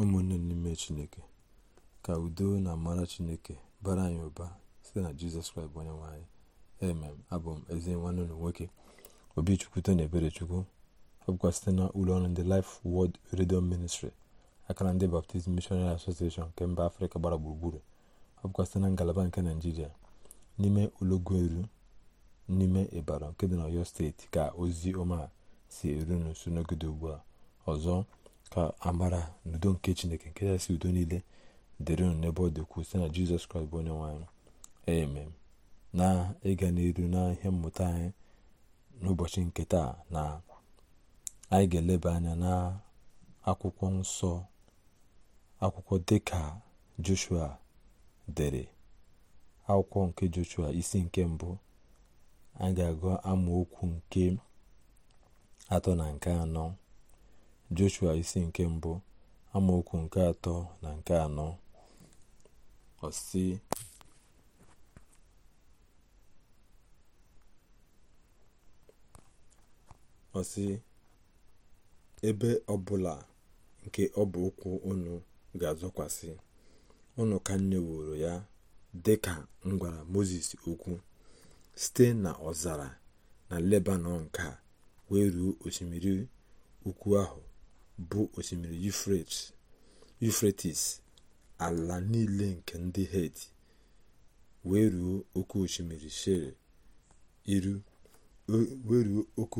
ụmụnne n'ime chineke ka udo na amara chineke bara anyị ụba site na jizọs kraịst bụ onye nwanyị emem abụ m ezi nwanne ụlọ nwoke obichukwuto na eberechukwu ọ bụkwa site na ụlọ ọrụ ndị Life Word redio ministri akara ndị Baptist Missionary asosieshon nke mba afrịka gbara gburugburu ọ site na ngalaba nke naijiria n'ime eru n'ime ịbara nke dị na steeti ka ozi ọma si eru n'uso n'ogede ugbu a ọzọ ka amara n'udo nke chineke nke kachasị udo niile dịrị unu n'ebe ọ dị site na jizọs kraịst bụ onye nwanyị amen na ịga n'iru na ihe mmụta anyị n'ụbọchị nke taa na anyị ga-eleba anya na akwụkwọ nsọ akwụkwọ dịka joshua dere akwụkwọ nke joshua isi nke mbụ anyị ga-agụ amaokwu nke atọ na nke anọ joshua isi nke mbụ amaokwu nke atọ na nke anọ ọsị ọsị ebe ọbụla nke ọbụ ụkwụ unu ga-azọkwasị ụnụ ka m ya dịka m gwara moses okwu site na ọzara na lebanon ka wee ruo osimiri ukwu ahụ bụ osimiri yufretis ala niile nke ndị hed wee ruo oke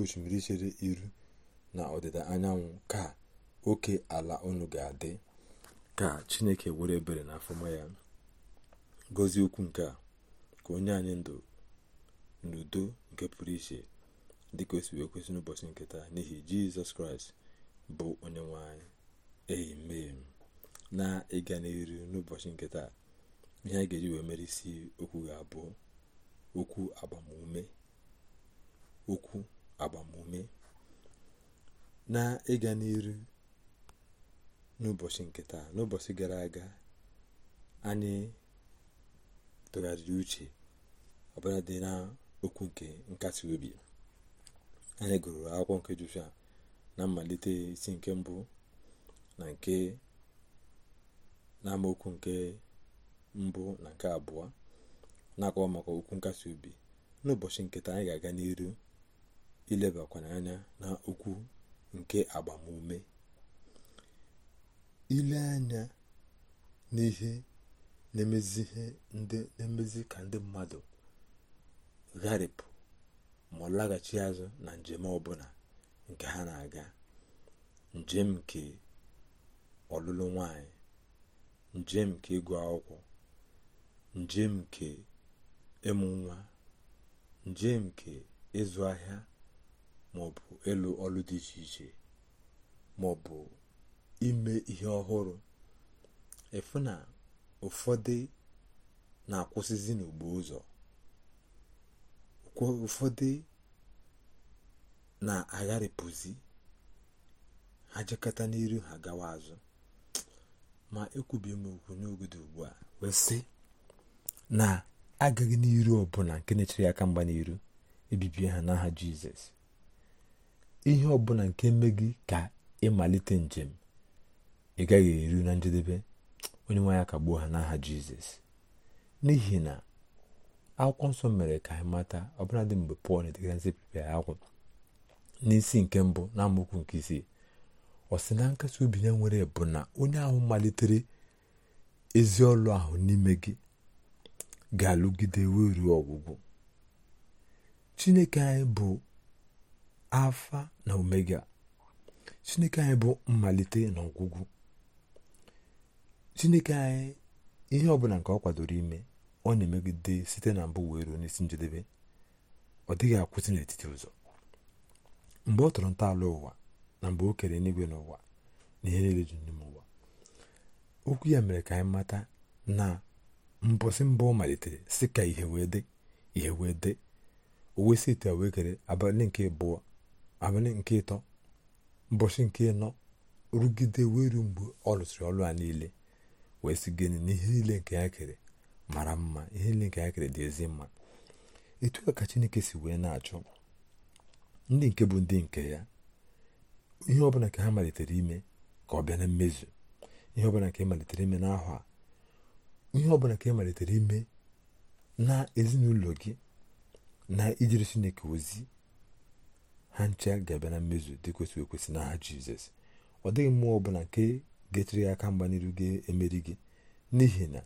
osimiri chere iru na ọdịda anyanwụ ka oke ala unu ga-adị ka chineke were ebere na afọma ya gozie okwu nke a ka onye anyị ndụ n'udo nke pụrụ iche dịka o si n'ụbọchị nkịta n'ihi jizọs kraịst bụ onyenwe anyị amen na ịga n'iru n'ụbọchị nke taa ihe a ga-eji wee mere isi okwu ga-abụ okwu agbamume okwu agbamume na ịga n'iru n'ụbọchị nke taa n'ụbọchị gara aga anyị tụgharịrị uche ọbụla dị na okwu nke nkasi obi anyị gụrụ akwụkwọ nke Joshua na mmalite isi nke mbụ na nke n'amaokwu nke mbụ na nke abụọ na-akọwa maka okwu nkasi obi n'ụbọchị ụbọchị nketa anyị ga-aga n'iru ilebakwanye anya na okwu nke agbamume ile anya n'ihe na-emezi na-emezi ka ndị mmadụ gharịpụ ma ọ laghachi azụ na njem ọbụla nke ha na-aga njem nke ọlụlụ nwanyị njem nke ịgụ akwụkwọ njem nke ịmụ nwa njem nke ịzụ ahịa maọbụ ịlụ ọlụ dị iche iche maọbụ ime ihe ọhụrụ efu na ụfọdụ na-akwụsịzi n'ugbo ụzọ ụfọdụ na-agharịpụzi ha jekọta n'iru ha gawa azụ ma ekwubi m okwu n'oge ugbu a wee na agaghị n'iru ọbụla nke na-echere aka mgba n'iru ebibie ha n'aha jizọs ihe ọbụla nke me gị ka ịmalite njem ị gaghị eru na njedebe onye nwe ya gbuo ha n'aha jizọs n'ihi na akwụkwọ nsọ mere ka anyị mata ọbụladị mgbe pọl na-edegara ndị akwụkwọ n'isi nke mbụ na amaokwu nke isii ọ sị na nkasi obi ya nwere bụ na onye ahụ malitere ezi ọlụ ahụ n'ime gị ga-alụgide wee ruo ọgwụgwụ chineke anyị bụ afa na omega chineke anyị bụ mmalite na ọgwụgwụ chineke anyị ihe ọbụla nke ọ kwadoro ime ọ na-emegide site na mbụ wee ruo n'isi njedebe ọ dịghị akwụsị n'etiti ụzọ mgbe ọ tọrọ ntọala ụwa na mgbe o kere n'igwe n'ụwa na ihe niile ji n'ime ụwa okwu ya mere ka anyị mata na mbọsị mbụ ọ malitere si ka ihe wee dị ihe wee dị owe si ite wee kere abalị nke abụọ abalị nke ịtọ mbọchị nke ịnọ rugide wee ruo mgbe ọ lụsịrị ọrụ a niile wee si gịnị na ihe niile nke ya kere mara mma ihe niile nke ya kere dị ezi mma etu a ka chineke si wee na-achọ ndị nke bụ ndị nke ya ihe ọbụla nke ha malitere ime ka ọ bịa na mmezu ihe ọbụla nke malitere ime n'ahụ a ihe ọbụla nke malitere ime na ezinụlọ gị na ijere chineke ozi ha ncha ga-abịa na mmezu dị kwesịrị ekwesị n'aha jizọs ọ dịghị mmụọ ọbụla nke ga-echere ya aka mgba n'iru ga-emeri gị n'ihi na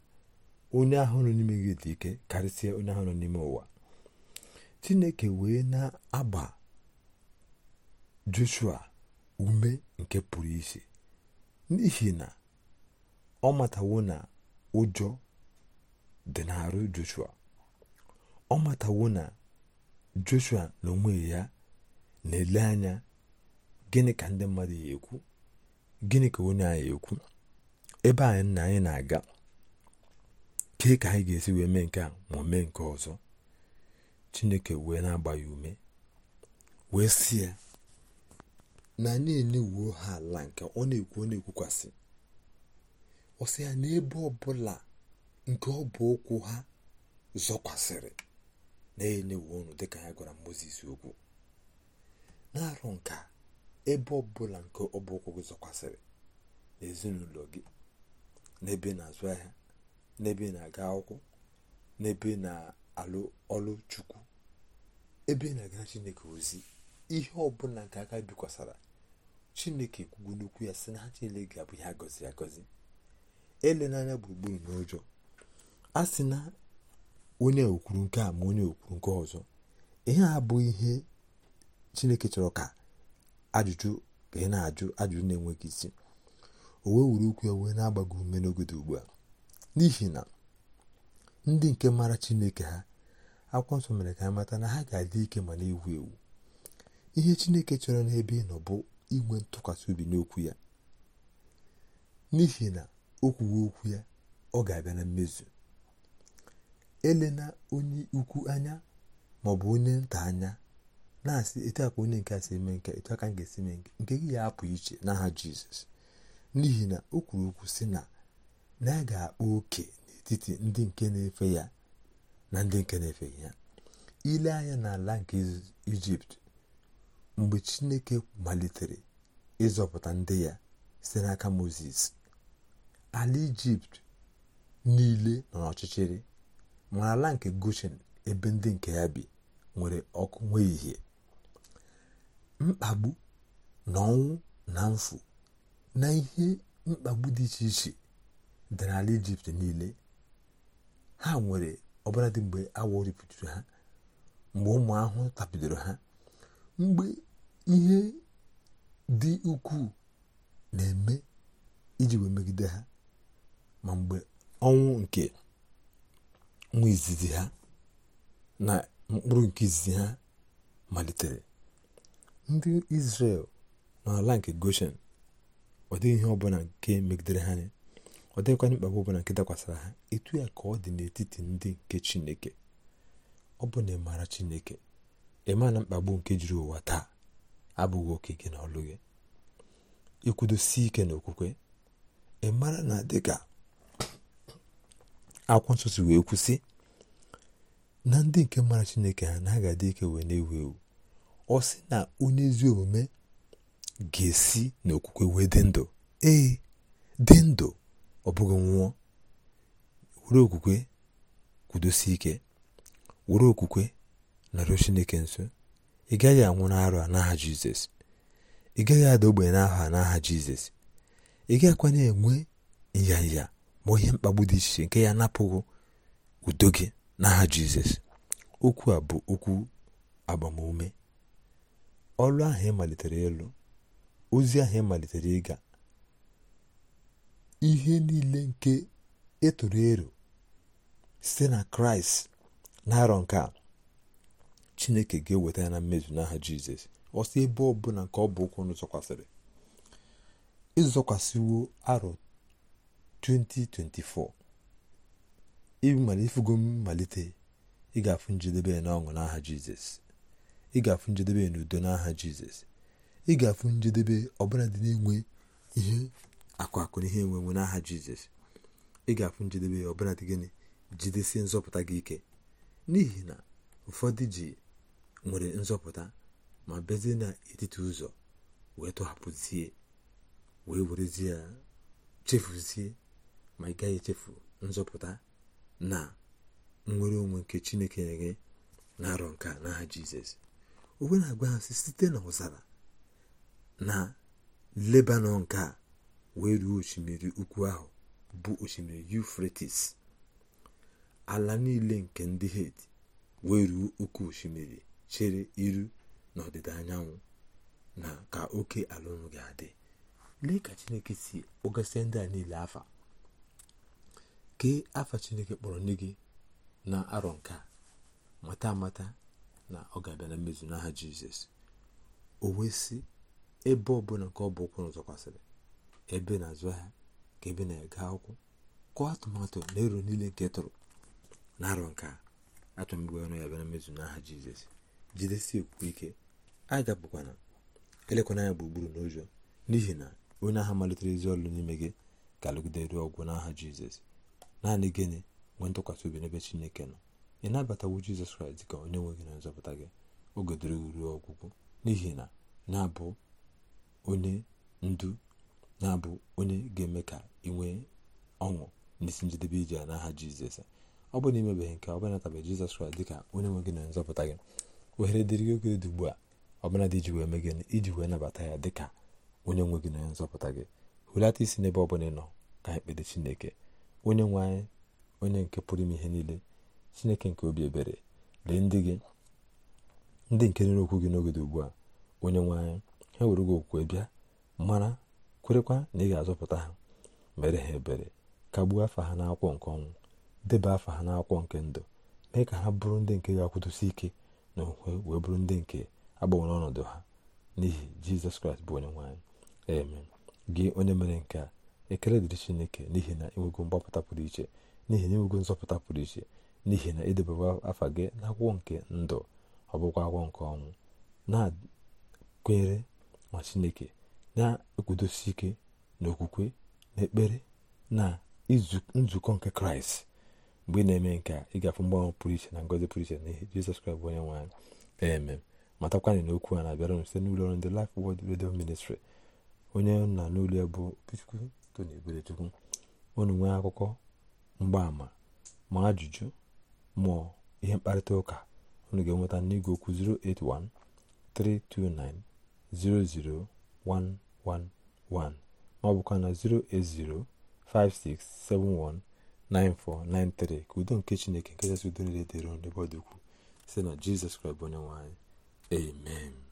onye ahụ nọ n'ime gị dị ike karịsịa onye ahụ nọ n'ime ụwa chineke wee na-agba joshua ume nke pụrụ iche n'ihi na ọ matawo na ụjọ dị n'arụ joshua ọ matawo na joshua na onwe ya na-ele anya gịnị ka ndị mmadụ ya ekwu gịnị ka onye anyị ekwu ebe anyị na anyị na-aga kee ka anyị ga-esi wee mee nke a ma mee nke ọzọ chineke wee na-agba ya ume wee si ya na anyị enewuo ha ala nke ọ na-ekwu ọ na-ekwukwasị ọ sị ya na ebe ọbụla nke ọ bụ okwu ha zọkwasịrị na-enyewu ọnụ dịka ya gwara mozis okwu na-arụ nka ebe ọbụla nke ọ bụ okwu gị zọkwasịrị na ezinụlọ gị n'ebe na-azụ ahịa n'ebe na-aga akwụkwọ n'ebe na-alụ ọlụ chukwu ebe na-aga chineke ozi ihe ọbụla nke aka bikwasara chineke kwugo n'okwu ya sị na ha chinele ga-abụ ha gọziri agọzi ele n'anya gburugburu n'ụjọ a sị na onye okwuru nke a ma onye okwuru nke ọzọ ihe a bụ ihe chineke chọrọ ka ajụjụ ka ị na-ajụ ajụjụ na-enweghị isi o wee wuru ukwu ya wee na-agbago ume n'ogodo ugbu a n'ihi na ndị nke mara chineke ha akwụkwọ nsọ mere ka ha mata na ha ga-adị ike ma na-ewu ewu ihe chineke chọrọ n'ebe ị nọ bụ inwe ntụkwasị obi n'okwu ya n'ihi na o kwuwe okwu ya ọ ga-abịa na mmezu elena onye ukwu anya ma ọ bụ onye nta anya na-asị etu a ka onye nke a si eme nke etu a ka m ga-esi eme nke nke gị ya apụ iche n'aha jizọs n'ihi na o kwuru okwu si na na ya ga-akpa oke n'etiti ndị nke na-efe ya na ndị nke na-efeghị ya ile anya n'ala nke ijipt mgbe chineke malitere ịzọpụta ndị ya site n'aka moses ala ijipt niile nọ n'ọchịchịrị ma ala nke goshen ebe ndị nke ya bi nwere ọkụ nwee ihe mkpagbu na ọnwụ na mfu na ihe mkpagbu dị iche iche dị n'ala ijipt niile ha nwere ọbụladị mgbe awọ ripụtụrụ ha mgbe ụmụ ahụhụ tapidoro ha mgbe ihe dị ukwuu na-eme iji wee megide ha ma mgbe ọnwụ nke nwa izizi ha na mkpụrụ nke izizi ha malitere ndị Izrel n'ala nke Goshen ọ dịghị ihe nke megidere ha anya ọ dịghịkwa mkpagbu ọbụla nke dakwasara ha etu ya ka ọ dị n'etiti ndị nke Chineke ọ bụ na ịmara Chineke ịma mkpagbu nke jiri ụwa taa abụghị oke gị na gị ikwudosi ike n'okwukwe ị mara na dịka akwụkwọ nsọ si wee kwụsị na ndị nke mara chineke ha na ha ga-adị ike wee na-ewu ewu ọ sị na onye ezi omume ga-esi n'okwukwe wee dị ndụ ee dị ndụ ọ bụghị nwụọ were okwukwe kwudosi ike were okwukwe narịọ chineke nso ị gaghị anwụ n'arụ a n'aha jizọs ị gaghị ada ogbenye n'aha n'aha jizọs ị gaghịkwa na-enwe nyanya ma ihe mkpagbu dị iche nke ya napụghị udo gị n'aha jizọs okwu a bụ okwu agbamume ọrụ ahụ ịmalitere malitere ozi ahụ ịmalitere ịga ihe niile nke ịtụrụ e ero site na kraịst na arọ nke a chineke ga-eweta ya na mmezu n'aha jizọs ọsị ebe ebe ọbụla nke ọ bụ ụkwụ unu zọkwasịrị ịzọkwasịwo arọ 2024 ịmalịfugo mmalite ị ga-afụ njedebe ya n'ọṅụ n'aha jizọs ị ga-afụ njedebe ya n'udo n'aha jizọs ị ga-afụ njedebe ọbụla dị na-enwe ihe akụ akụ na ihe enwenwe n'aha jizọs ị ga-afụ njedebe ya ọbụla dị gịnị jidesie nzọpụta gị ike n'ihi na ụfọdụ ji nwere nzọpụta ma bezie n'etiti ụzọ wee tọhapụzie wee werezie chefuzie ma ị gaghị echefu nzọpụta na nwere onwe nke chineke nye gị na arọ nke n'aha jizọs onwe na-agwa ha site na ụzara na lebanon nke a wee ruo osimiri ukwu ahụ bụ osimiri yufretis ala niile nke ndị het wee ruo oke osimiri chere iru n'ọdịda anyanwụ na ka oke ala ga-adị lee ka chineke si kpọgasịa ndị a niile afa kee afa chineke kpọrọ nne gị na arọ nke a mata amata na ọ ga-abịa na mmezu n'aha jizọs o si ebe ọbụla nke ọ bụ ụkwụ zọkwasịrị ebe na-azụ ahịa ka ebe na ega akwụkwọ kụọ atụmatụ na ero niile nke tụrụ na arọ nke a atụmgbe ọnụ ya abịa na mmezu n'aha jizọs jidesi okwukwe ike na elekwana bụ gburugburu n'ụjọ n'ihi na onye agha malitere ezi ọlụ n'ime gị ga-alụgide ruo ọgwụ n'aha jizọs naanị gịnị nwee ntụkwasị obi n'ebe chineke nọ ị nabatawo jizọs kraịst ka onye nwe gị na nzọpụta gị oge dịrị ruo ọgwụgwụ n'ihi na na-abụ onye ndu na-abụ onye ga-eme ka ị nwee ọṅụ n'isi njedebe ije n'aha jizọs ọ bụ na imebeghị nke ọ bụ natabeghị jizọs kraịst dịka onye nwe gị na nzọpụta gị ohere dịrị gị oge dị ugbu a ọbụla dị iji wee mee gịnị iji wee nabata ya dị ka onye nwe gị na onye nzọpụta gị hulata isi n'ebe ọ bụla ị nọ ka ekpere chineke onye nwe anyị onye nke pụrụ ime ihe niile chineke nke obi ebere lee ndị gị ndị nke nere okwu gị n'oge dị ugbu a onye nwe anyị ha were gị okwukwe bịa mara kwerekwa na ị ga-azọpụta ha mere ha ebere kagbuo afa ha n'akwụkwọ nke ọnwụ deba afa ha n'akwụkwọ nke ndụ mee ka ha bụrụ ndị nke ga-akwụdosi ike na okwukwe wee bụrụ ndị nke agbanwere ọnọdụ ha n'ihi jizọs kraịst bụ onye nwaanyị eme gị onye mere nke a ekele dịrị chineke n'ihi na enwego mgbapụta pụrụ iche n'ihi na enwego nzọpụta pụrụ iche n'ihi na edebewa afa gị na agwọ nke ndụ ọ bụkwa agwọ nke ọnwụ na-kwenyere ma chineke na-ekwudosi ike na okwukwe na ekpere na nzukọ nke kraịst mgbe ị na-eme nke a ị ga-afụ mgbanwe pụrụ iche na ngozi pụrụ iche n'ihe jizọs kraịst bụ onye nwe anyị eme matakwana na okwu a na-abịara m site n'ụlọ ọrụ ndị Life Word Radio Ministry onye nna n'ụlọ bụ Obichukwu Tony Eberechukwu unu nwee akụkọ mgbaama ma ajụjụ ma ihe mkparịta ụka unu ga-enweta n'igwe okwu 08132900111 ma ọ bụkwa na 0805671 9493 ka udo nke chineke nke kachasị udo niile dịrị n'ebe ọ dị ukwuu site na jizọs kraịst bụ onye amen